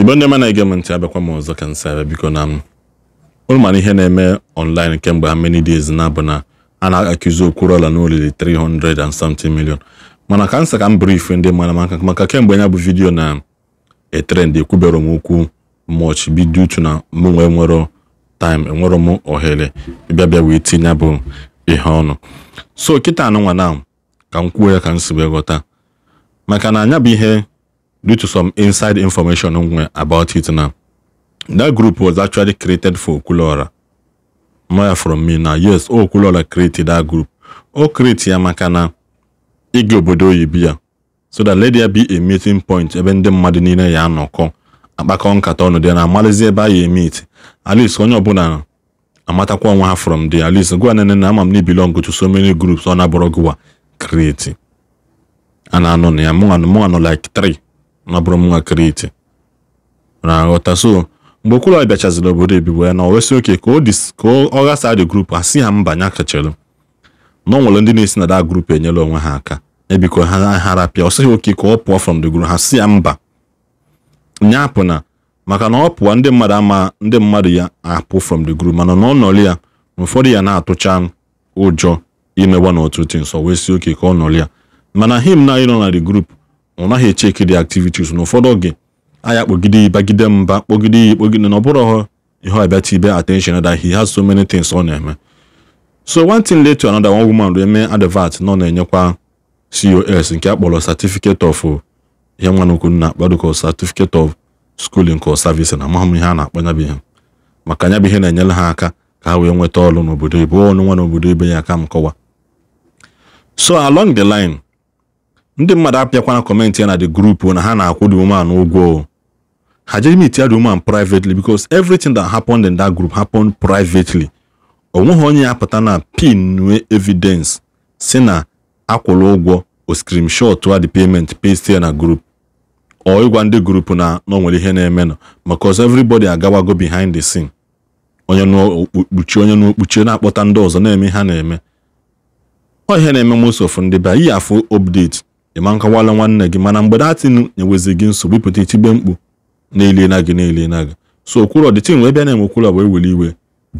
igbe ndị mana ege m ntị abịakwa m ọzọ ka nsị abịa biko na m mana ihe na-eme online kemgbe ha many days na abụ na a na akụzi Okwuluola na olili 300 and something million mana ka nsị ka m brief ndị mara maka maka kemgbe ya bụ vidiyo na etrend ekwubere m okwu much bido uchu na mụ nwee nwere time enwere m ohere ịbịa bịa wee tinye bụ ihe ọnụ so kịta nwa na ka m kwuo ya ka m si wee ghọta maka na anya bụ ihe due to some inside information about it now. That group was actually created for okulora maya from me now. Yes, oh, okulora created that group. O oh, create ya maka na ịga obodo oyibo ya so that let there be a meeting point ebe ndị mmadụ niile ya anọkọ akpakọ nkata di dị na ebe a ya emeet at least onye ọbụla amatakwa onwe ha from there at least gwa nene na ama m belong to so many groups ọ na-abụrụ gụwa create a anọ na ya like three nabụrụ m nwa Kriti na aghọta so mgbe Okwuluọra bịachaziri obodo ebibo ya na owesi oke ka ọ ghasaa dị grup a si ha mba nya kachere na ọ ndị na-esi na da grupu enyela onwe ha aka ebiko ha pịa ọ sịghị oke ka ọ pụọ from the group ha si ya mba nya apụ na maka na ọ pụọ ndị mmadụ ama ndị mmadụ ya apụ from the group mana na ọ ya na ụfọdụ ya na-atụcha ụjọ imewa n'ọtụtụ nso wee si oke ka ọ nọrị ya mana him na ịnọ na the group ọ naghị echeki the activities na ụfọdụ oge aya kpogide bagide mba kpogide ya ekpogide na ọ bụrụ ihe ọbịatibe attention that he has so many things ọ na-eme so one thing led to another one woman wee mee advert na na-enyekwa cos nke a kpọrọ certificate of ihe nwa n'okwu nna akpadoko certificate of schooling or service na amahụ m ihe a na-akpọ ihe maka anya bụ ihe na-enyere ha aka ka ha wee nweta ọrụ n'obodo ibe ọnụ nwa n'obodo ibe ya aka m kọwa so along the line ndị mmadụ apịakwana kọmentị ya na the group na ha na-akwụ the woman ụgwọ ha jeghị m itia the woman privately because everything that happened in that group happened privately onweghị onye ya pụta na pin nwee evidence si na akwụrụ ụgwọ o screenshot the payment paste ya na group ọ ịgwa ndị group na nwere ihe na-eme nọ because everybody agawago behind the scene onye n'okpuchi onye n'okpuchi na-akpọta ndị ọzọ na-eme ha na-eme ọ ihe na-eme most of ndị be iyi afụ update ịma nkọwala nwanne gị mana mgbe datin enwezi gị nsogbu ịpụta itigbe mkpu na-elena gị na gị so okwuru the thing wee bịa na-eme okwuro wee were iwe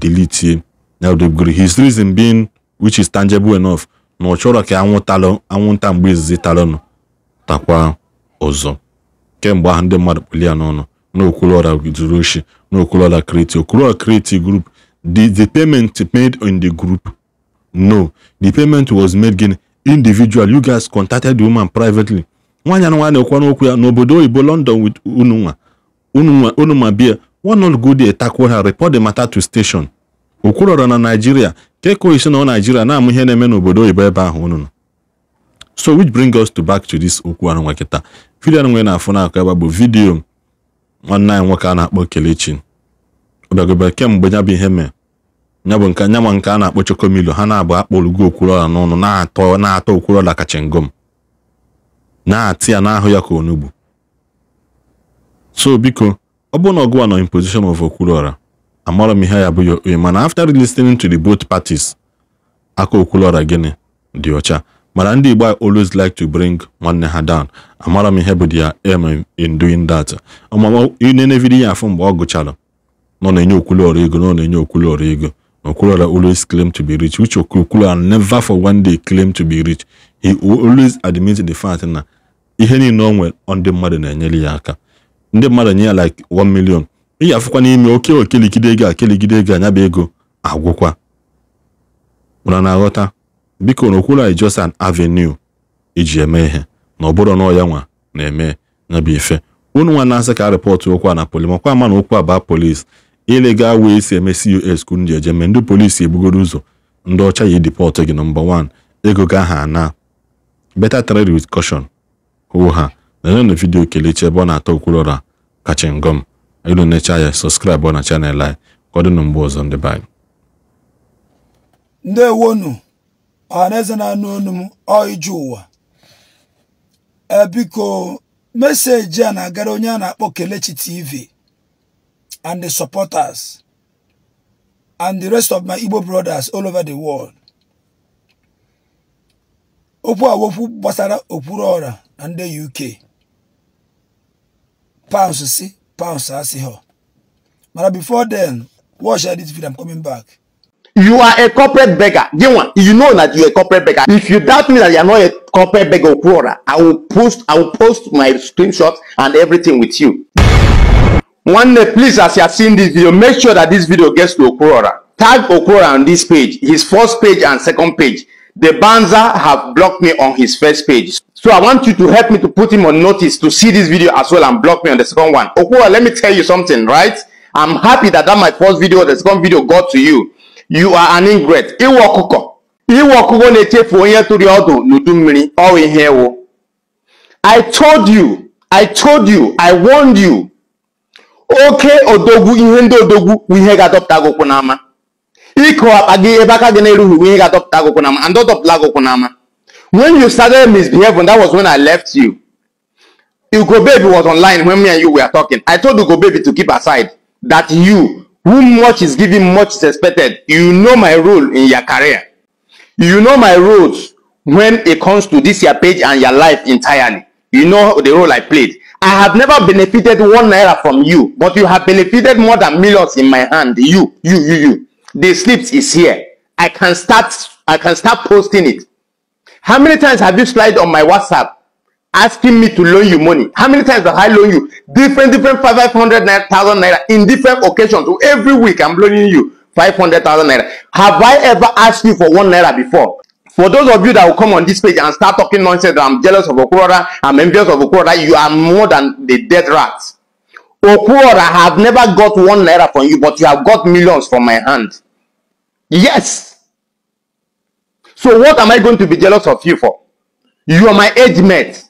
delitie now they've got his reason being which is tangible enough na ọ chọrọ ka anwụtalụ anwụnta mgbe izizi talụnụ takwa ọzọ kemgbe ahụ ndị mmadụ kpụli n'ọnụ na okwuluora zuru oshi na okwuluora create okwuru create group the the payment made in the group no the payment was made gịnị individual you guys contacted the woman privately nwanyị anụ nwa na ekwu n'okwu ya n'obodo oyibo london with unu ununwa unuma bia one not go there tackle ha report the matter to station okwurọrọ na nigeria keko isi na naijiria na-amụ ihe na-eme n'obodo oyibo ebe ahụ unu so which bring us to back to this okwu anụ nwa kịta vidio nwe na-afụ n'akụ ebe bụ vidio nwanne anyị nwoke a na-akpọ Kelechi ọ bịagobe kemgbe ya bụ ihe mee ya bụ nke nya ma nke a na-akpọ chokomilo ha na-abụ akpọlugo okwuruọla n'ọnụ na-atọ na-atọ okwuruọla ka ngom na-atị ya n'ahụ ya ka onugbu so biko ọ bụrụ na ọgụwa nọ in position of okwuruọra amara m ihe ya bụ ya mana after listening to the both parties aka okwuruọra gịnị dị ọcha mana ndị Igbo always like to bring nwanne ha down amara m ihe bụ their em in doing that na inenevidi ya afọ mgbe ọ gụchara nọ na-enye okwuruọra ego nọ na-enye ọrụ ego Okura always claimed to be rich, which Okura never for one day claimed to be rich. He always admitted the fact na ihe niile o nwere ndị mmadụ na-enyere ya aka. Ndị mmadụ nye ya like 1 million. Ị ga-afụkwa n'ime oke okeligide ego akeligide ego anya bụ ego agwụkwa. Ụra na-aghọta biko na Okura just an avenue iji eme ihe na ọ bụrụ na ya nwa na-eme ya bụ ife. ka a rịpọtụ okwu a na polis makwa ama na okwu a baa polis ile gaa wee si eme cus kwuru ndị eje ndị polisi ebugoro ụzọ ndị ọcha yi depọtụ gị nọmba wan ego gị ha ana beta trade with caution hụ ha nere vidio vidiyo kelechi ebe ọ na-atọ okwulọra kacha ngọm elu necha ya sọskraịbụ na chanel anyị ka ọ mgbe ọzọ ndị be anyị ndewonu ọhaneze na-anụ onu m ọiju ụwa eh, biko meseji a na-agara onye a na-akpọ kelechi tv and the supporters and the rest of my Igbo brothers all over the world. Okwu a wokwu gbasara okpuru ọra na ndị see, Pounds si, pounds asịghọ. Mana before then, watch I this video, I'm coming back. You are a corporate beggar. Gilman, you know that you're a corporate beggar. If you doubt me that you're not a corporate beggar, I will post I will post my screenshots and everything with you. One day, please, as you have seen this video, make sure that this video gets to Okurora. Tag Okurora on this page, his first page and second page. The Banza have blocked me on his first page. So I want you to help me to put him on notice to see this video as well and block me on the second one. Okurora, let me tell you something, right? I'm happy that that my first video, the second video got to you. You are an ingrate. I told you, I told you, I warned you oke odogwu ihe ndị odogwu bụ ihe ga-adọpụta agụkwụ n'ama ịkụ akpa gị ebe aka gị na-erughị bụ ihe ga-adọpụta agụkwụ n'ama and dọpụta agụkwụ n'ama when you started misbehaving that was when I left you Ugo baby was online when me and you were talking I told Ugo baby to keep aside that you who much is given much is expected you know my role in your career you know my roles when it comes to this your page and your life entirely you know the role I played I have never benefited one naira from you, but you have benefited more than millions in my hand. You, you, you, you. The slips is here. I can start. I can start posting it. How many times have you slid on my WhatsApp asking me to loan you money? How many times have I loaned you different, different five hundred thousand naira in different occasions? Every week I'm loaning you five hundred thousand naira. Have I ever asked you for one naira before? For those of you that will come on this page and start talking nonsense that I'm jealous of Okurora, I'm envious of Okurora, you are more than the dead rats. Okuroda have never got one naira from you, but you have got millions from my hand. Yes. So what am I going to be jealous of you for? You are my age mate.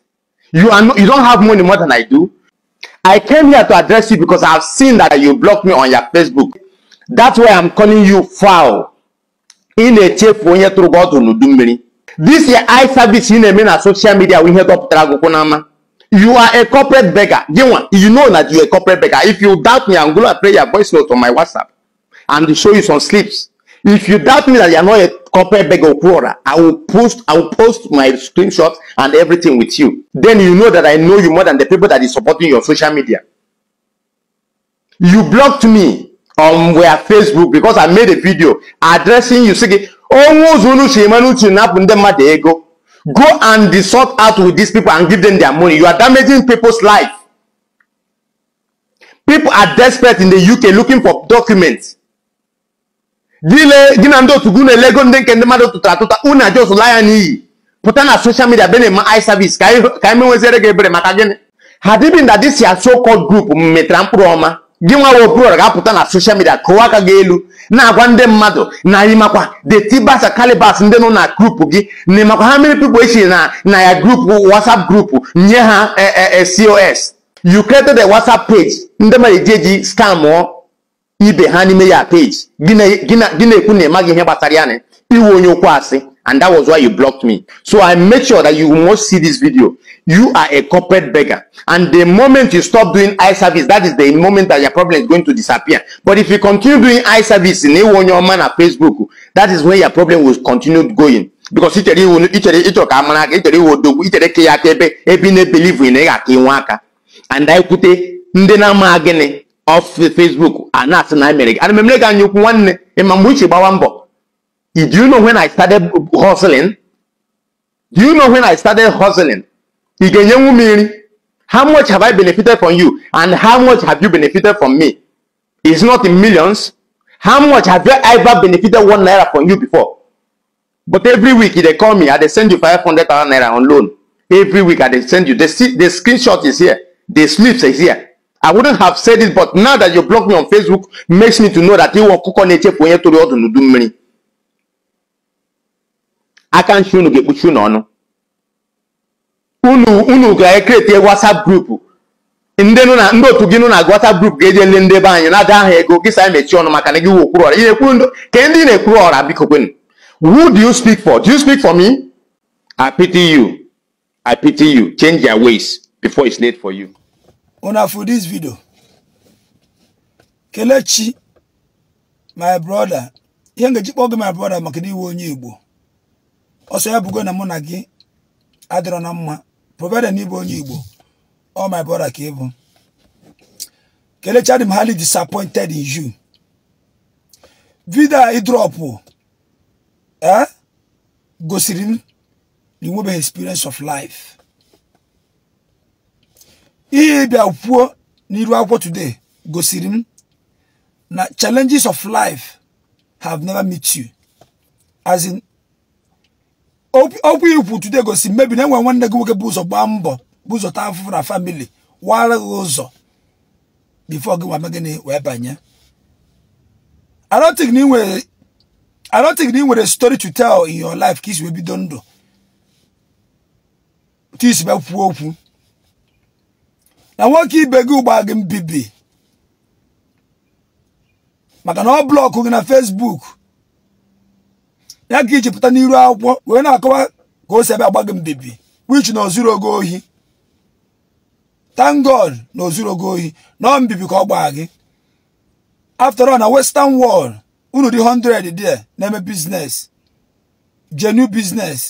You are no, you don't have money more than I do. I came here to address you because I have seen that you blocked me on your Facebook. That's why I'm calling you foul ị na-echefu onye tụrụ gị ọdụ n'udu mmiri this your I service ị na-eme na social media bụ ihe dọpụtara agụkwụ n'ama you are a corporate beggar gịnwa you know that you are a corporate beggar if you doubt me and go and play your voice note on my whatsapp and show you some slips if you doubt me that you are not a corporate beggar or i will post i will post my screenshots and everything with you then you know that i know you more than the people that is supporting your social media you blocked me um, were Facebook because I made a video addressing you sị gị onwe ụzọ unu si ego go and sort out with these people and give them their money you are damaging people's life people are desperate in the UK looking for documents Dile na ndị otu gị na-elego ndị nke just mmadụ tụtara atụta unu ajọs n'iyi pụta na social media be na-eme service ka anyị menweziere gị ebere maka gịnị ha dịbi nda dịsi asokọ gị nwa Obiora ga-apụta na soshal midia kụwa aka gị elu na-agwa ndị mmadụ na ịmakwa the Tibas Calibers ndị nọ na grupu gị na ịmakwa ha mere pipo echi na na ya grupu WhatsApp grupu nye ha e, e, e, COS you created a WhatsApp page ndị mmadụ eji eji mụọ ibe ha n'ime ya page gị na-ekwu na ị maghị ihe gbasara ya na iwe onye okwu asị and that was why you blocked me so i made sure that you must see this video you are a corporate beggar and the moment you stop doing eye service that is the moment that your problem is going to disappear but if you continue doing eye service in a one your man at facebook that is when your problem will continue going because ichere iwu ichere ịchọrọ ka amara aka ichere iwu odogwu ichere ebe ebe ị na-ebelivu ị and I kwute ndị na-ama gịnị of facebook a na-asị na emere gị ana memere gị anya ukwu nwanne ịma mgbe uche gbawa mbọ Do you know when I started hustling? Do you know when I started hustling? How much have I benefited from you? And how much have you benefited from me? It's not in millions. How much have you ever benefited one naira from you before? But every week they call me, I they send you 500 naira on loan. Every week I they send you. The, the screenshot is here. The slips is here. I wouldn't have said it, but now that you block me on Facebook, makes me to know that you want to do money. aka nchi unu ga-ekpuchi unu ọnụ unu ga-ekreti WhatsApp grupu ndị nụ na ndị otu gị nụ na WhatsApp grupu ga-eje le ndị be anyị na-ada aha ego gị sa mechie ọnụ maka na gị wụ okpuru ọra ị na-ekwu ndụ ka ndị na-ekwuru ọra biko kwenu who do you speak for do you speak for me I pity you I pity you change your ways before it's late for you una for this video Kelechi my brother ihe nga ji kpọọ gị my brother maka na iwe onye Igbo ọsọ ya bugo na mụ na gị adịrọ na mma provided na ịbụ onye Igbo ọ my brother ka ịbụ kelechadị m disappointed in you vidio a ịdrọpụ e, gosiri m na inwebeghị experience of life ihe ịbịa kwuo n'iru akwụkwọ today gosiri m na challenges of life have never met you as in okwu ikwu tude gosi mmebi na enwe nwanne gị nwoke bụ ụzọ gbaa mbọ bụ ụzọ taa afụfụ na famili wara gị ụzọ bifo gị wame gịnị wee banye arotik na ị nwere story to tell in your life ka isi wee bido ndụ ka isi be kwuo okwu na nwoke ibe gị ụgba gị mbibi maka na ọ blọkụ gị na Facebook ya ka iji pụta n'iru akwụkwọ wee na-akọwa ka o si ebe agba gị mbibi wich na ozuru ogo ohi na ozuru ogo ohi nọọ mbibi ka ọ gbaa gị after all na western world unu dị 100 there na-eme business genu business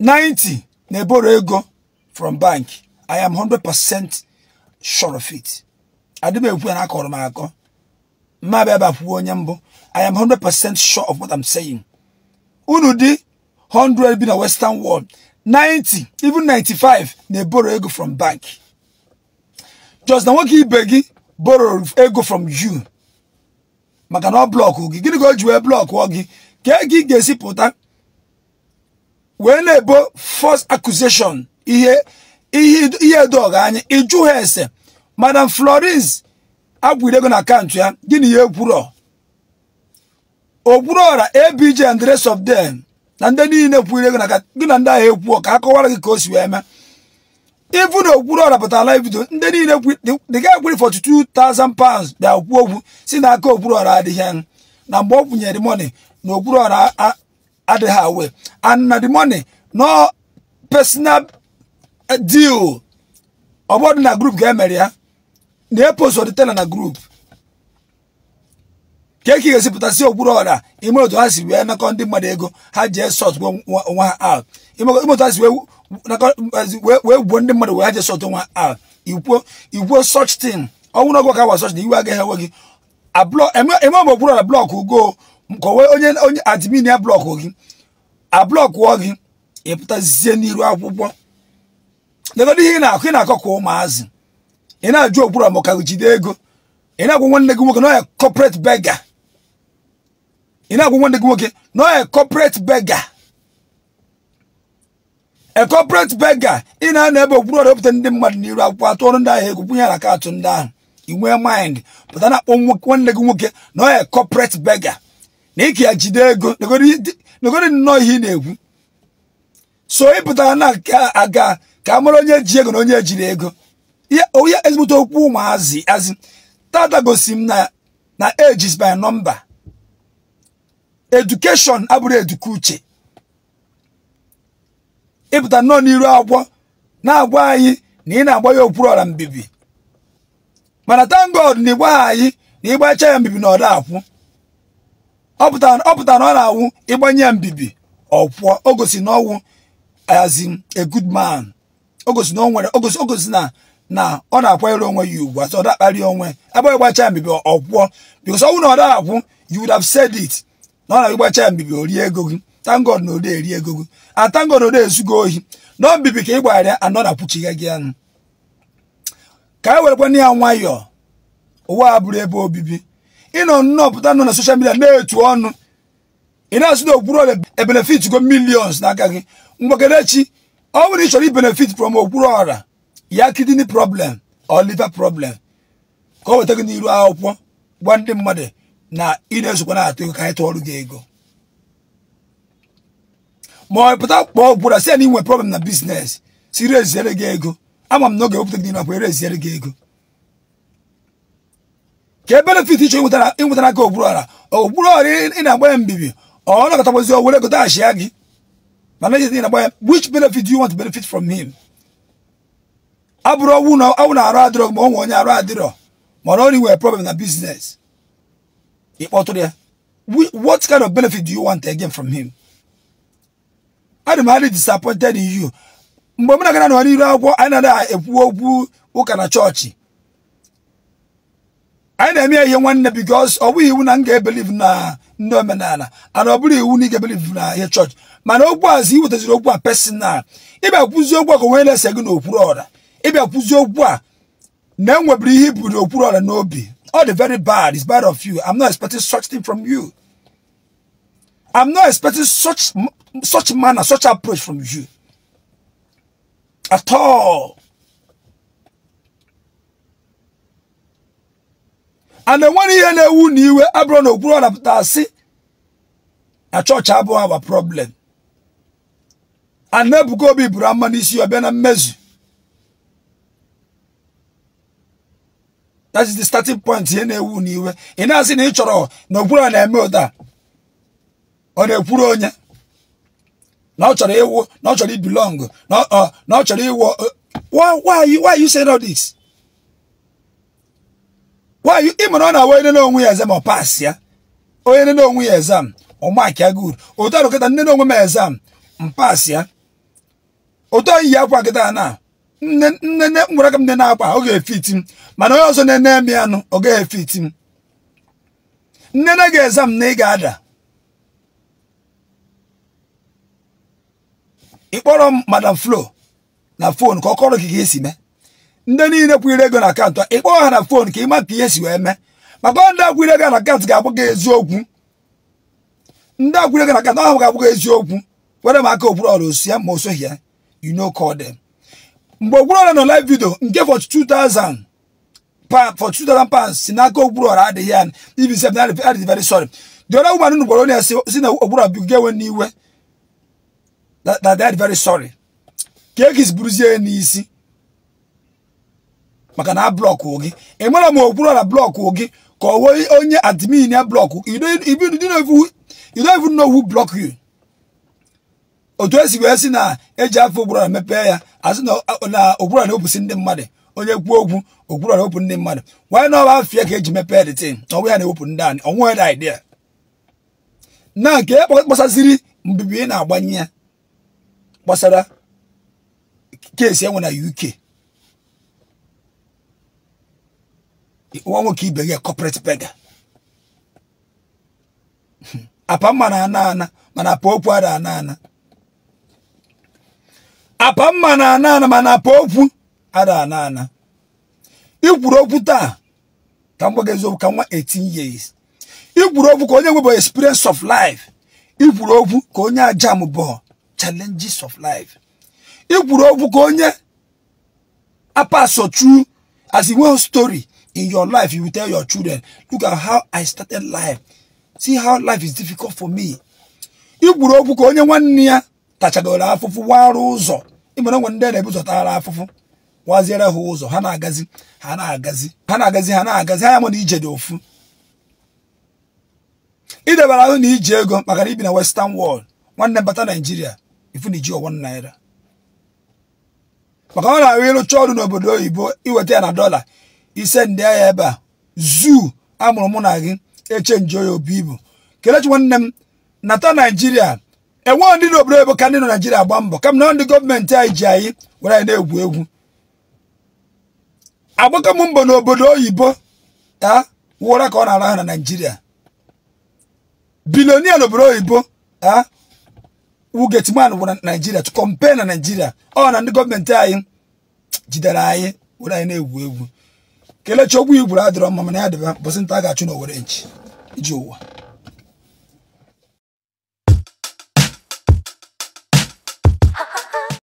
90 na-eboro ego from bank I am 100% sure of it adị m ekwu ya na akọrọ m akọ mma bịa bịa onye mbụ I am 100% sure of what I'm saying. Unu di 100 bi na Western world, 90, even 95 na e borrow ego from bank. Just na nwoke ibe gị borrow ego from you. Maka na ọ blọkụ gị, gịnị ka o ji wee blọkụ gị? Ka ego ị ga-esi pụta wee na-ebo first accusation ihe ihe edoghị anya ịjụ ha ese madam Florence agwụrụ ego na akaụntụ ya gịnị ya ekwuru ogwurora ABJ and the rest of them na ndị niile kwuru ego na gị na ndị ahụ ekwu ka a kọwara gị ka o si wee mee ifu na Okpuruọra pụtara live video ndị niile dịga ekwuri for 2,000 pounds bịa okwu okwu si n'aka Okpuruọra adịghị na mgbe ọ kwụnyere money na Okpuruọra adịghị awe and na the money no personal eh, deal ọ na group ga-emere ya na eposoditela na group ka eke ga-esipụtasị okpuru ọra ime otu ha si wee nakọ ndị mmadụ ego ha jee sọtụ nwa ha out ime otu ha si wee gbuo ndị mmadụ wee ha jee sọtụ nwa ha out igwuo such thing ọnwụrụ ọgụ ka wa such thing iwe agaghị enwe gị eme ọbụ e okpuru ọra blọk ugo ka onwe onye onye admin ya blọkụ gị ablọkụọ gị ịpụtazie n'iru akwụkwọ legọdo ihe ị na-akụ ị na-akọ ka ụmụazị ị na-ajụ okpuru ọmụ ka jide ego ị na-agwa nwanne gị nwoke na onye corporate beggar ị na-agwụ nwanne gị nwoke nọ a corporate beggar a corporate beggar ị na anọ ebe okpuru ọrịa ndị mmadụ n'iru akwụkwọ atụọrụ ndị ahụ egwu kwụnye aka atụ ndị ahụ inwe mind pụta na-akpọ nwanne gị nwoke nọ a corporate beggar na ike ya jide ego negoro nnọọ ihe ị na-ekwu so ị pụtara na aga ka a mara onye ji ego na onye ejiri ego onye ezigbote okwu ụmụazị azị tata gosi m na ages by number edukeshọn abụrụ eduka uche ịpụta nnọọ n'iru agwọ na-agwa anyị na ị na-agba ya okpuru ọra mbibi mana thank God na ịgbaghị anyị na ịgbacha ya mbibi na ọda akwụ ọ pụta na ọ na-awụ ịgbanye ya mbibi ọkwụọ o gosi na ọnwụ as a good man o gosi na o nwere o gosi na na ọ na-akwanyere onwe ya ugwu asọ ọ dakparị onwe agbaghị gbacha ya mbibi ọkwụọ because ọnwụ wụ na ọ akwụ you would have said it na ọ na-agbacha mbibi ori ego gị tangod na ode eri ego gị atangod ah, ode ezugo ohi na mbibi ka ị gwagharịa anọ na kpuchighị gị anụ ka anyị e werekwana ya nwayọọ ụwa a bụrụ ebe obibi ịnọ nnọọ pụta nọ na soshal midia na-etu ọnụ ị na-asụ na okwuru ọrịa ebenefit go millions n'aka gị mgbakedechi ọ bụrụ ị chọrọ ibenefit from okwuru ya kidini problem or liver problem ka ọ weta gị n'iru akwụkwọ gwa ndị mmadụ na ị na-ezokwa na-atụ ego ka anyị tụọ ọrụ gị ego ma ọ pụta kpọọ bụra si ya na inwe problem na bizinesi si reziere gị ego ama m n'oge oge wepụta gị n'ime akwa ereziere gị ego ka e benefit iche ịnwetara aka ogburu ala ogburu ọrụ ị na agbanye mbibi ọ nakọtakwazi were ego taghachia gị mana ejezi na-agba ya which benefit do you want to benefit from him abụrụ ọnwụ na arụ adịrọ ma onwe onye arụ adịrọ mana ọ na-enwe na biznes ịkpọtụrụ ya what kind of benefit do you want again from him adị m adị disappointed in you mgbe m na-agana nọ n'iru akwụkwọ anyị na adịghị ekwu okwu ụka na chọọchị anyị na-eme ya ihe nwanne because ọ bụghị iwu na m ga-ebeliv na ndị omenala ana ọ bụrụ iwu na ị ga-ebeliv na ihe chọọchị mana okwu azụ iwetaziri okwu a personal ịbịa kwuzie okwu a ka onwe na-ese gị n'okpuru ọra ịbịa kwuzie okwu a na enwebiri ihe iburu okpuru ọra n'obi All the very bad is bad of you. I'm not expecting such thing from you. I'm not expecting such, such manner, such approach from you. At all. And then when he and knew wound, you were abroad or up, a church have a problem. And be Brahman is your Benamezzu. that is the starting point ihe na-ewu n'iwe ị na-asị na ị chọrọ na okpuru a na-eme ụda ọ na-ekwuru onye na ọ chọrọ ịwụ na ọ chọrọ ibelong na ọ uh, chọrọ ịwụ uh, why are you saying all this why ị mara ọ na-awa onye n'onwe ya exam ọ pass ya onye nne n'onwe ya exam ọ mark ya good otu arụkọta nne n'onwe m exam m pass ya otu oyi ya akwa kịta na nne nwere aka m nne na-akpa ọ ga-efiti m mana onye ọzọ na-ene m ya nụ ọ ga-efiti m nnene ga-eza m na ị ga-ada ịkpọrọ m madam flo na fon ka ọ kọrọ gị ka esi mee ndị niile kwụnyere ego na akaụntụ ịkpọọ ha na fon ka ị ma ka ihe si wee mee maka ndị akwụnyere ego na akaụntụ ga-abụ gị eziokwu ndị akwụnyere ego na akaụntụ ahụ ga-abụ gị eziokwu were m aka okpuru ọrụ osi ya ma o soghị ya you know call them mgbe Ogburuọra nọ live video nke for 2000 for 2000 pounds si n'aka Ogburuọra adịghị ya ibi sef na adịghị very sorry the other woman nụ gwara onye si na Ogburuọra bigo n'iwe that they very sorry ka egis buruzie n'isi maka na blọkụ gị ị e mara ma Ogburuọra blọkụ gị ka ọ onye admin ya blọkụ otu esi wee si na eji afọ Ogburara mepee ya asị na Ogburara na-ebusi ndị mmadụ onye kwuo okwu Ogburara na-ewepụ ndị mmadụ wanye na ọba afịa ka eji mepee dị tin na ọnwụ ya na-ewepụ ndị anyị ọnwụ ya dị idea na nke e kpasaziri mbibi ị na-agbanye ya kpọsara keesi enwe na UK nwa nwoke ibe gị corporate beggar apa ma na ana ana mana apa okwu ada ana ana apa mma na ana ana mana apa okwu ada ana ana ikwuru okwu taa ka m gbaga eziokwu ka nwa 18 years ikwuru okwu ka onye nwebụ experience of life ikwuru okwu ka onye ajam bụ challenges of life ikwuru okwu ka onye apaso true as a one story in your life you tell your children look at how i started life see how life is difficult for me ikwuru okwu ka onye nwanne ya tachagoro afụfụ warụ ụzọ ịmara nwe ndị na-ebuzọtara afụfụ waziere ha ụzọ ha na-agazi ha na-agazi ha na-agazi ha na-agazi ha ya na ije dị ofu idebara ahụ na iji ego maka na ibi na western wọld nwanne bata naijiria ifu na iji naira maka ọ na-ahụ ịrụcha ọrụ n'obodo oyibo iweta ya na dọla ise ndị agha ebe a zuu amụrụ mụ na gị echenji oya obi ibu kelechi nwanne m nata naijiria enweghị ndị n'obodo oyibo ka ndị nọ Naịjirịa agba mbọ ka na ndị gọọmenti anyị ji anyị were anyị na-egwu egwu agbakọ mbọ n'obodo oyibo a wụra ka ọ na-ara ha na Naịjirịa bilonia n'obodo oyibo a wugetman bụ naijiria Naịjirịa kọmpe na Naịjirịa ọ na ndị gọọmenti anyị jidere anyị were anyị na-egwu egwu kelechi ogwu igburu adịrọ mma mana ya dịba bọsị nta a ga-achụ n'owere nchi iji ụwa